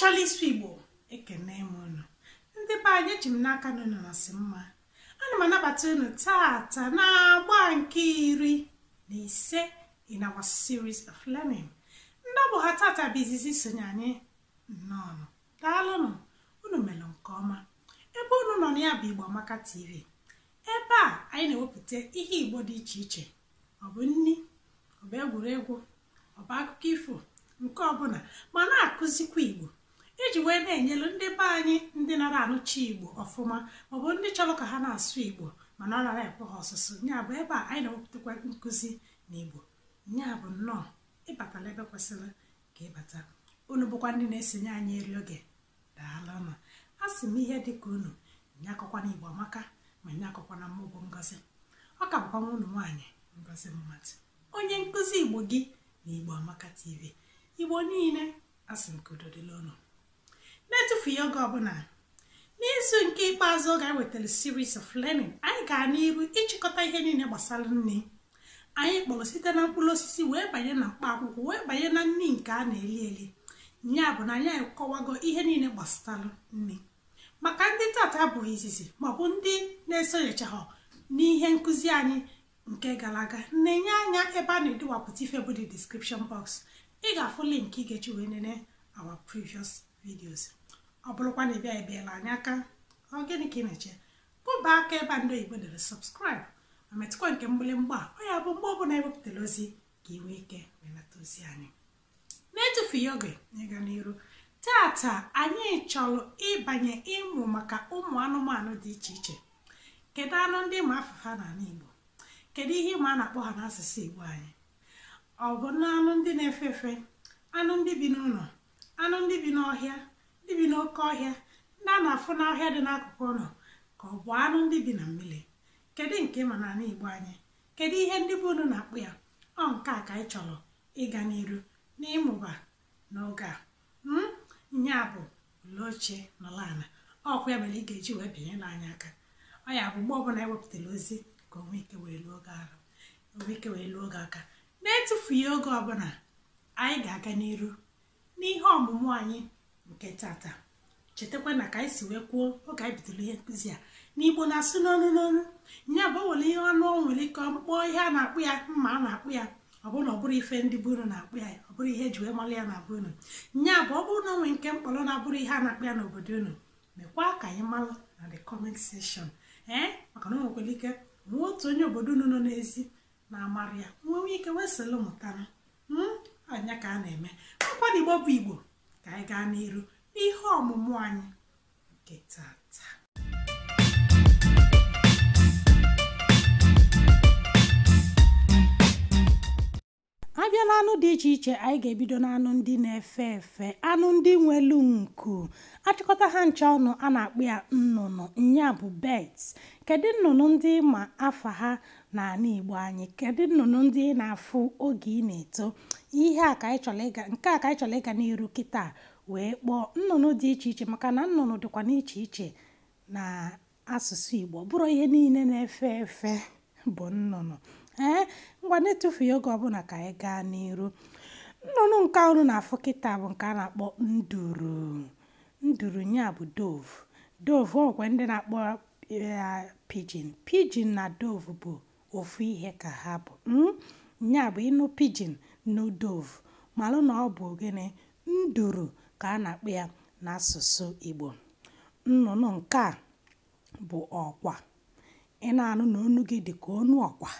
ọmachala isu igbo ekene m unu ndị be anyị eji m n'aka na unu na mma ana m anabata unu tata na agba nke iri na ise in our series of learning ndị ọbụ ha tata bụ izizi sonye anyị nnọọ daalụnụ unu mere nke ọma ebe unu nọ na ya bụ igbo amaka tv ebe a anyị na-ewepụta ihe igbo dị iche iche ọ bụ nni ọ bụ egwuregwu ọ bụ akụkọ ifo nke ọbụla ma na-akụzikwa igbo iji wee na-enyelu ndị be anyị ndị nara anụchi igbo ọfụma maọbụ ndị chọrọ ka ha na-asụ igbo mana ọ nara ekwe ha ọsụsụ ya bụ ebe a anyị na-ewepụtakwa nkụzi na igbo ya bụ nnọọ ịbatala ebe kwesịrị ka ịbata unu bụkwa ndị na-esonye anyị eri oge daalụnụ a sị m ihe dịka unu nye na igbo amaka ma nye akọkwa na mmụọ ngozi ọ ka bụkwa nwa unu nwaanyị ngozi mmadụ onye nkụzi igbo gị na igbo amaka tv igbo niile asị m ka udo dịla ụnụ na ya oge ọbụla n'izu nke ikpeazụ oge anyị wetara series of learning anyị ga n'iru ịchịkọta ihe niile gbasara nne anyị kpọrọ site na mkpụrụ osisi wee banye na mkpa akwụkwọ wee banye na nne nke a na-eli eli ya bụ na anyị akọwago ihe niile gbasara nne maka ndị tata abụghị izizi maọbụ ndị na-esonyechaghị n'ihe nkụzi anyị nke gara aga na-enye anya ebe a na-edowapụta ife bụ the description box ị ga-afụ link ị ga-eji wee nene our previous videos ọ bụrụkwa na ịbịa ebiela anyị aka ọ gịnị ka ị na-eche bụba aka ebe ndị oyibo dere sọbskraịb ma metụkwa nke mgbịlịmgba ọ ya bụ mgbe ọbụla ewepụtara ozi ka ị nwee ike belata ozi anyị na-etufughị oge ịga n'iru tata anyị chọrọ ịbanye ịmụ maka ụmụ anụmanụ dị iche iche kedu anụ ndị ma afụfa n'ala igbo kedu ihe ịma a na-akpọ ha n'asụsụ igbo anyị ọ bụ na anụ ndị na-efe efe anụ ndị bi n'ụlọ anụ ndị bi n'ọhịa ibi n'oke ọhịa ndị a na-afụ n'ọhịa dị n'akụkụ ụlọ ka ọ bụ anụ ndị bi na mmiri kedu nke ma n'ala igbo anyị kedu ihe ndị bụ unu na-akpụ ya ọ nke a ka anyị chọrọ ịga n'iru n'ịmụba n'oge a nya hmm? bụ ule ochie nọla ala ọkwa ya mere ị ga-eji wee binye n'anya aka ọ ya bụ mgbe ọbụla ewepụtara ozi ka onwe ike wee lụọ oge oge aka na-etufughị oge ọbụla anyị ga-aga n'iru n'ihe ọmụmụ anyị nke tata chetakwa na ka anyị si wee kwuo oge anyị bidoro ihe nkụzi a n'igbo na asị n'ọnụ n'ọnụ nya bụ o ihe ọnụ ọ nwere ike ọkpụkpọ ihe a na-akpụ ya mma a na-akpụ ya ọ bụrụ na ọ bụrụ ife ndị bụrụ na-akpụ ya ọ bụrụ ihe eji wee mara ya na-abụ unu nya bụ ọ bụrụ na onwe nke mkpọrọ na-abụrụ ihe a na-akpụ ya n'obodo unu mekwa ka anyị mara na the comment section ee maka na o ike nwee otu onye obodo unu nọ n'ezi na-amara ya nwee nwee ike wee sịlụ mụtara hmm? anya ka a na-eme nkwado igbo bụ igbo ka anyị gaa n'iru n'ihe ọmụmụ anyị nke tata abịa na anụ dị iche iche anyị ga-ebido n'anụ ndị na-efe efe anụ ndị nwelu nku achịkọta ha ncha ọnụ a na-akpụ ya nnụnụ nya bụ bet. kedu nnụnụ ndị ma afa ha n'ala Igbo anyị kedu nnụnụ ndị na-afụ oge ị na-eto ihe a ka anyị chọrọ ịga nke a ka anyị chọrọ ịga n'iru kịta wee kpọọ nnụnụ dị iche iche maka na nnụnụ dịkwa n'iche iche na asụsụ Igbo bụrụ ihe niile na-efe efe bụ nnụnụ ee ngwa na-etufughị oge ọbụla ka anyị gaa n'iru nnụnụ nke ọrụ na-afụ kịta bụ nke a na-akpọ nduru nduru nya bụ dove dove ọkwa ndị na-akpọ eh, pijin pijin na dove bụ ofu ihe ka ha bụ hmm? nya bụ ịnụ pijin nudov malụ na ọ bụ gịnị nduru ka a na-akpọ ya n'asụsụ Igbo nnụnụ nke a bụ ọkwa ị na-anụ na onu gị dị ka onu ọkwa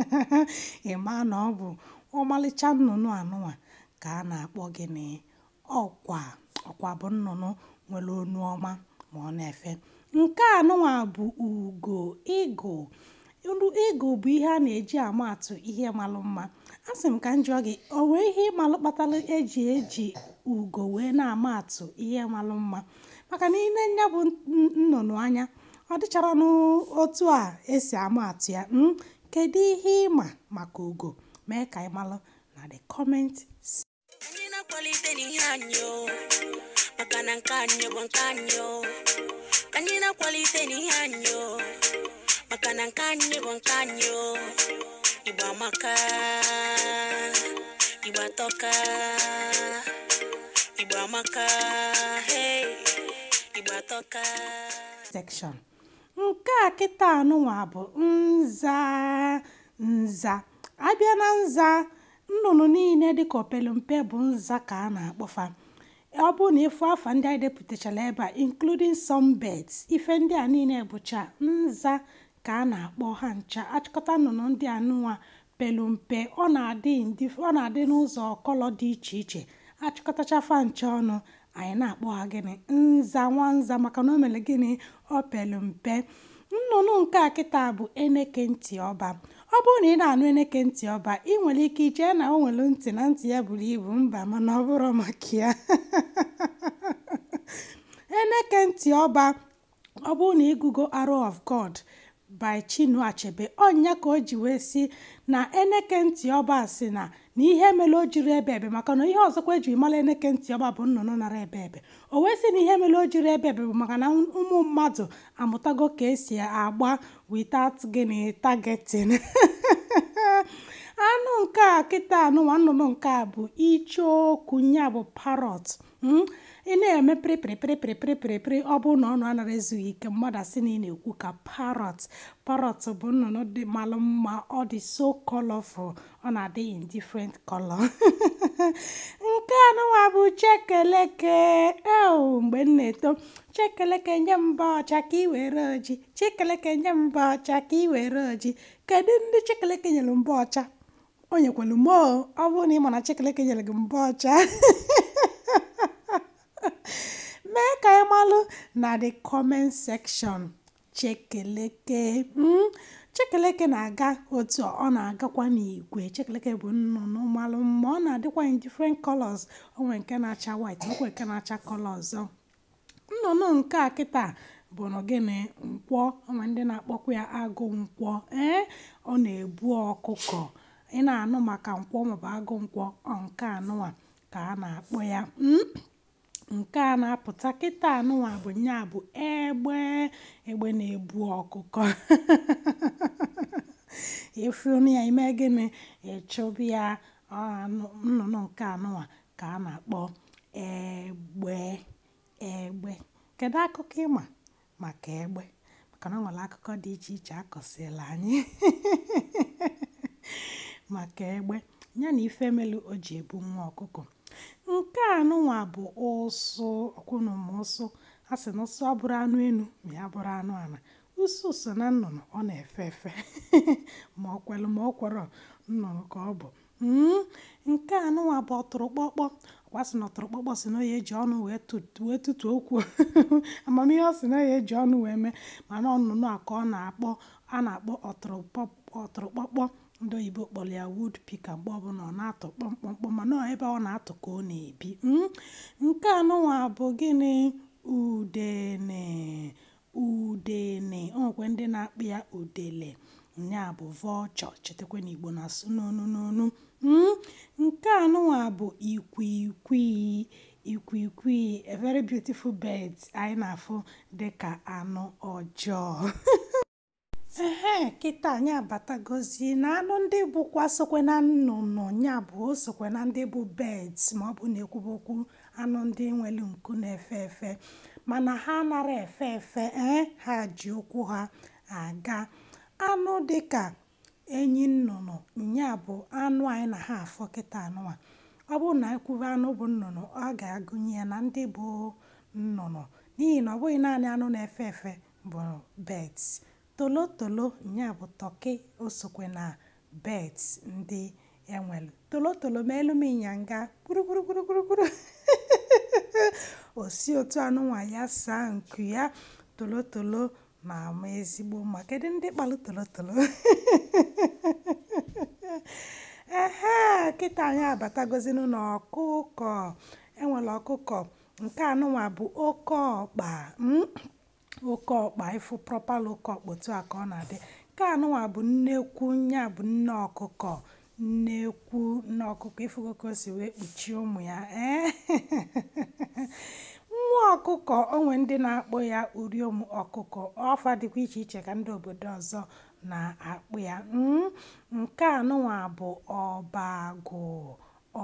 ị na ọ bụ ọmalịcha nnụnụ anụnwa ka a na-akpọ gịnị ọkwa ọkwa bụ nnụnụ nwere onu ọma ma ọ na-efe nke anụnwa bụ ugo ịgụ olu ịgụ bụ ihe a na-eji ama atụ ihe malụ mma asị m ka njọ gị o nwee ihe ịmalụ kpatara eji eji ugo wee na-ama atụ ihe malụ mma maka na ile nya bụ nnụnụ anya ọ dịchara n'otu a esi ama atụ ya hmm? kedu ihe ịma maka ugo mee ka ịmalụ na the comment anyị na-akwalite n'ihe anyị maka na nke anyị bụ nke anyị anyị na-akwalite n'ihe anyị maka na nke anyị bụ nke anyị igba amaka igba tọka igba amaka igba atọka section nke a kịta anụnwa bụ nza nza abịa na nza nnụnụ niile dịka mpe bụ nza ka a na-akpọfa ọ bụ na ịfụ afa ndị anyị depụtachara ebe a including some birds ife ndị a niile bụcha nza ka a na-akpọ ha ncha achịkọta nnụnụ ndị anụnwa nụnwa ọ na-adị n'ụzọ ọkọlọ kọlọ dị iche iche achịkọtacha fa ncha ọnụ anyị na-akpọ ha gịnị nza nwa nza maka na o mere gịnị ọ pelu nnụnụ nke a kịta bụ eneke ntị ọba ọ bụrụ na ị na-anụ eneke ntị ọba ị nwere ike ichee na o nwere ntị na ntị ya buru ibu mba mana ọ bụrụ maka ya eneke ntị ọba ọ bụrụ na ịgụgo arrow of God by chinu Achebe ọnya ka o ji wee si na eneke ntị ọba si na na ihe mere o jiri ebe ebe maka na ihe ọzọkwa ejiri mara eneke ntị ọba bụ nnụnụ nara ebe ebe o wee sị na ihe mere o jiri ebe ebe bụ maka na ụmụ mmadụ amụtago ka esi agba without gịnị targeting anụ nke a kịta anụnwa nnụnụ nke a bụ icheoku ya bụ parot hmm? ị na-eme pịrịpịrịpịrịpịrịpịrịpịrị ọ bụrụ na ọnụ anaghị ezughị ike mmadụ asị na ị na-ekwu ka parot parot bụ nnụnụ dị malụ mma ọ dị so colorful ọ na-adị in difrent kọlọ nke anụwa bụ chekeleke mgbe m na-eto Chikeleke nye m mbọ ọcha ka i were oji. Chikeleke nye m ọcha ka i oji. Kedụ ndị Chikeleke nyelu mbọ ọcha? O nyekwelu Ọ bụrụ na ị ma na Chikeleke nyelu gị mbọ ọcha mee ka anyị malụ na the comment section Chikeleke mm, Chikeleke na-aga otu ọ na-agakwa n'igwe Chikeleke bụ nnụnụ malụ mma ọ na-adịkwa in different colors onwe nke na-acha white onwe nke na-acha color ọzọ oh. nnụnụ nke a kịta bụ gịnị nkwọ ma ndị na-akpọkwa ya agụ nkwọ ee ọ na-ebu ọkụkọ ị na-anụ maka nkwọ maọbụ agụ nkwọ nke anụnwa ka a na-akpọ ya hmm? nke a na-apụta kịta anụwa bụ nya bụ egbe egbe na-ebu ọkụkọ ịfụnụ ya ime gịnị ịchụbụ ya nnụnụ nke anụwa ka a na-akpọ egbe egbe kedu akụkọ ịma maka egbe maka na ọ nwere akụkọ dị iche iche akọsịla anyị maka egbe ya na ife melu o ji ebu nwa ọkụkọ nke a nụnwa bụ ụsụ ma ụsụ a sị na ụsụ abụrụ anụ enu ma ya bụrụ anụ ala ụsụ so na nnụnụ ọ na-efe efe ma ọ kwelụ ma ọ kwọrọ nnụnụ ka ọ bụ hmm? nke a nụnwa bụ ọtụrụ kpọkpọ ọkwa sị na ọtọrọkpọkpọ sị na ya eji ọnụ wee tụtụ okwu amamihe ọ sị na ya eji ọnụ wee mee mana ọnụnụ a ka ọ na-akpọ a na-akpọ ọtọrọkpọkpọ ndị oyibo kpọrọ ya wood pika mgbe ọbụla ọ na-atọ kpọmkpọmkpọ mana ebe ọ na-atọ ka ọ na-ebi hmm? nke anụnwa bụ gịnị udene udene o ndị na akpị ya udele nya bụ vulture chetakwa na igbo na-asụ n'onu n'onu Hmm? Nke anụ bụ bụ ikwikwii ìkwììkwìi a very beautiful birds anyị nà dị ka anụ ọjọọ ehee kịta anyị abatagozi na anụ ndị bụkwa sokwe na nnụnụ ya bụ sokwe na ndị bụ birds ma ọ bụ na ekwubokwu anụ ndị nwere nku na-efe efe mana ha anara efe efe ee eh? ha ji ụkwụ ha aga anụ dịka enyi nnụnụ nya bụ anụ anyị na ha afọ kịta anụnwa ọ bụrụ na ekwuru anụ bụ nnụnụ ọ ga-agụnye na ndị bụ nnụnụ n'ihi na ọ bụghị naanị anụ na-efe efe bụ birds tolotolo nya bụ tọki osokwe na birds ndị enwelu tolotolo ma elu m ịnyanga gburugburu otu anụnwa ya saa nku ya tolotolo na-ama ezigbo mma kedu ndị kpalụ tolotolo ehe kịta anyị abatagozinu ọkụkọ enwere ọkụkọ nke anụnwa bụ oke ọkpa hmm? oke ọkpa ịfụ propal oke ọkpa a ka ọ na-adị nke anụnwa bụ nnekwu nya bụ nne ọkụkọ nnekwu nne ọkụkọ ịfụgo o si wee kpuchie ụmụ ya ee eh? nwa ọkụkọ onwe ndị na-akpụ ya uriom ọkụkọ ọfa dịkwa iche iche ka ndị obodo ọzọ na-akpụ ya hmm, nke a nụnwa bụ ọbagụ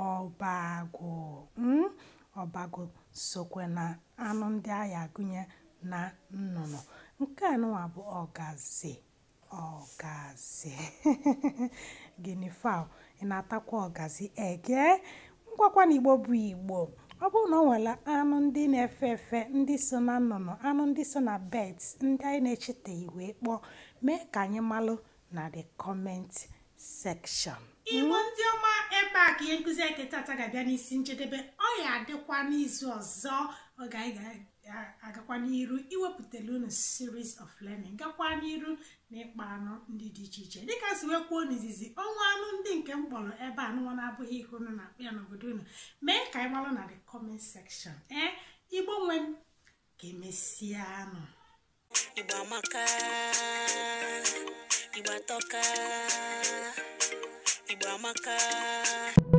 ọbagụ hmm, ọbagụ sokwe na anụ ndị agha gụnye na nnụnụ nke a nụnwa bụ ọgazi ọgazi gịnị fa ị na-atakwa ọgazi ege ngwakwa na igbo bụ igbo ọ bụrụ na ọ nwere anụ ndị na-efe efe ndị so na nnụnụ anụ ndị so na beds ndị anyị na echeta wee kpọọ mee ka anyị malụ na the comment section ịbụ ndị ọma ebe a ka ihe nkụzi anyị tata ga-abịa n'isi njedebe ọ ya adịkwa n'izu ọzọ ọ ga-aga agakwa n'iru iwepụtara unu series of learning gakwa n'iru na ịkpa anụ ndị dị iche iche dịka si wee kwuo n'izizi ọnwa anụ ndị nke m kpọrọ ebe anụnwa na-abụghị ihe unu na-akpụ ya n'obodo unu mee ka anyị gbalụ na the comment section ee igbo nwe m ka anụ igbo